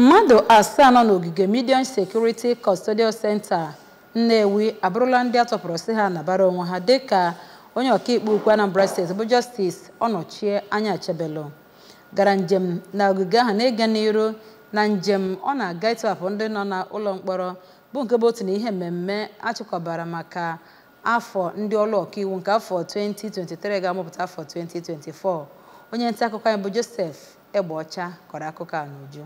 mmadụ asaa nọ n'ogige Medium Security Custodial Center Nnewi abụrụla ndị atọpụrụ si ha nabara onwe ha dịka onye ọkaikpe ukwu Anambra State bụ Justice Ọnọchie Anya Achebelu gara njem na ogige ahụ na-ege n'iru na njem ọ na-aga ịtọhapụ ndị nọ n'ụlọ mkpọrọ bụ nke bụ otu na ihe mmemme achịkọbara maka afọ ndị ọrụ ọkaiwu nke afọ 2023 ga-amụpụta afọ 2024 onye nta akụkọ anyị bụ Joseph Egbeọcha kọrọ akụkọ a n'uju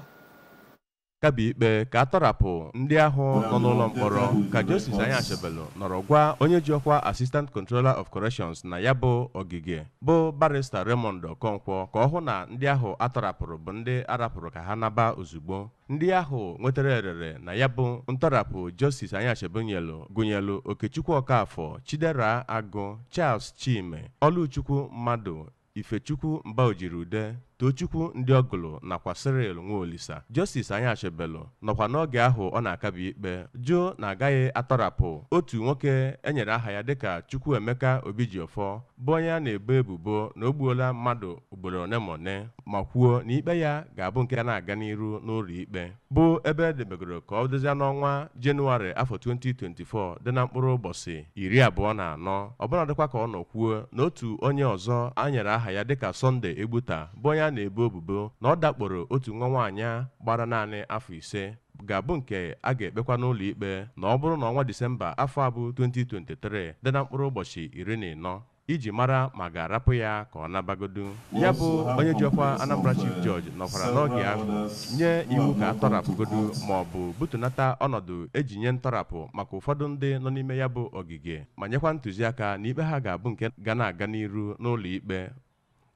kaba ikpe ka atọrapụ ndị ahụ nọ n'ụlọ mkpọrọ ka Justice Anya Achebelu nọrọ gwa onye ji ọkwa Assistant Controller of Corrections na ya bụ ogige bụ barista Raymond Okonkwo ka ọ hụ na ndị ahụ atọrapụrụ bụ ndị arapụrụ ka ha naba ozugbo ndị ahụ nwetara erere na ya bụ ntọrapụ Justice Anya Achebelu gụnyelu Okechukwu Okafọ Chidera Agụ Charles Chime Oluchukwu Mmadụ Ifechukwu Mbaojirude Tochukwu ọgụlụ nakwa Cyril Nwaolisa Justice Anyachebelu nọkwa n'oge ahụ ọ na-akabi ikpe jụụ na agaghị atọrapụ otu nwoke enyere aha ya dịka Chukwuemeka Obijiọfọ bụ onye a na-ebo ebubo na o gbuola mmadụ ugboro one ma one ma kwuo na ikpe ya ga-abụ nke a na-aga n'iru n'ụlọ ikpe bụ ebe edebegoro ka ọ dozie n'ọnwa Jenụwarị afọ 2024 dị na mkpụrụ ụbọchị iri abụọ na anọ ọbụnadịkwa ka ọ nọ kwuo na otu onye ọzọ a nyere aha ya dịka sọnde Egbuta bụ onye ya na-ebo ebubo na ọ dakporo otu nwa nwaanyị gbara naanị afọ ise ga-abụ nke a ga-ekpekwa n'ụlọ ikpe na ọ bụrụ na ọnwa Disemba afọ abụ 2023 dị na mkpụrụ ụbọchị iri na ịnọ iji mara ma ga-arapụ ya ka ọ nabagodu ya bụ onye ji ọkwa Anambra Chief nọkwara n'oge ahụ nye iwu ka atọrapụgodu ma ọ bụ butunata ọnọdụ eji nye ntọrapụ maka ụfọdụ ndị nọ n'ime ya bụ ogige ma nyekwa ntụziaka na ikpe ha ga-abụ nke ga na-aga n'iru n'ụlọ ikpe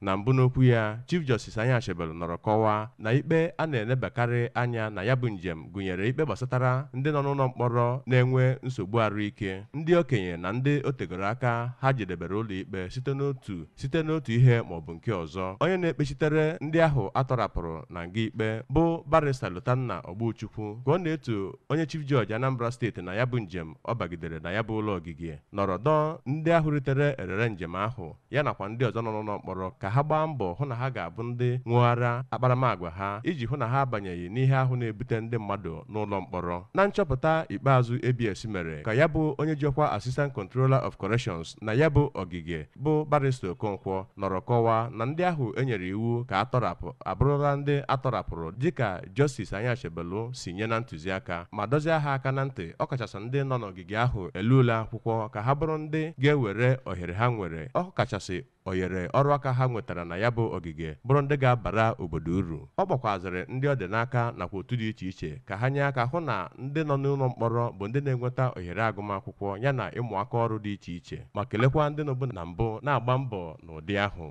na mbụ n'okwu ya Chief Justice Anya Achebelu nọrọ kọwaa na ikpe a na-elebakarị anya na ya bụ njem gụnyere ikpe gbasatara ndị nọ n'ụlọ mkpọrọ na-enwe nsogbu arụike ndị okenye na ndị tegoro aka ha jedebere ikpe site n'otu site n'otu ihe maọbụ nke ọzọ onye na-ekpechitere ndị ahụ atọrapụrụ na nga ikpe bụ barista Lotanna Ogbuchukwu ka ọ na-etu onye Chief Judge Anambra steeti na ya bụ njem ọ bagidere na ya bụ ụlọ ogige nọrọ dọọ ndị ahụ ritere erere njem ahụ ya nakwa ndị ọzọ nọ n'ụlọ mkpọrọ ka ha gbaa mbọ hụ na ha ga-abụ ndị ṅụghara akparamagwa ha iji hụ na ha abanyeghị n'ihe ahụ na-ebute ndị mmadụ n'ụlọ mkpọrọ na nchọpụta ikpeazụ ABS mere ka ya bụ onye ọkwa Assistant Controller of Corrections na ya bụ ogige bụ barista Okonkwo nọrọ kọwa na ndị ahụ enyere iwu ka atọrapụ abụrụla ndị atọrapụrụ dịka Justice Anyachebelu si nye na ntụziaka ma dozie ha aka na ntị ọkachasị ndị nọ n'ogige ahụ elula akwụkwọ ka ha bụrụ ndị ga-ewere ohere ha nwere ọkachasị oyere ọrụ aka ha nwetara na ya bụ ogige bụrụ ndị ga-abara obodo uru ọ gbakwazịrị ndị ọ dị n'aka nakwa otu dị iche iche ka ha nye aka hụ na ndị nọ n'ụlọ mkpọrọ bụ ndị na-enweta ohere agụmakwụkwọ yana ịmụ aka ọrụ dị iche iche ma kelekwa ndị nọbụ na mbụ na-agba mbọ n'ụdị ahụ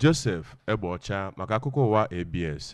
Joseph Egbeọcha maka akụkọ ụwa ABS